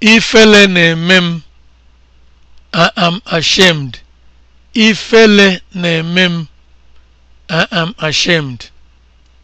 Ifele na-eme m. am I am ashamed.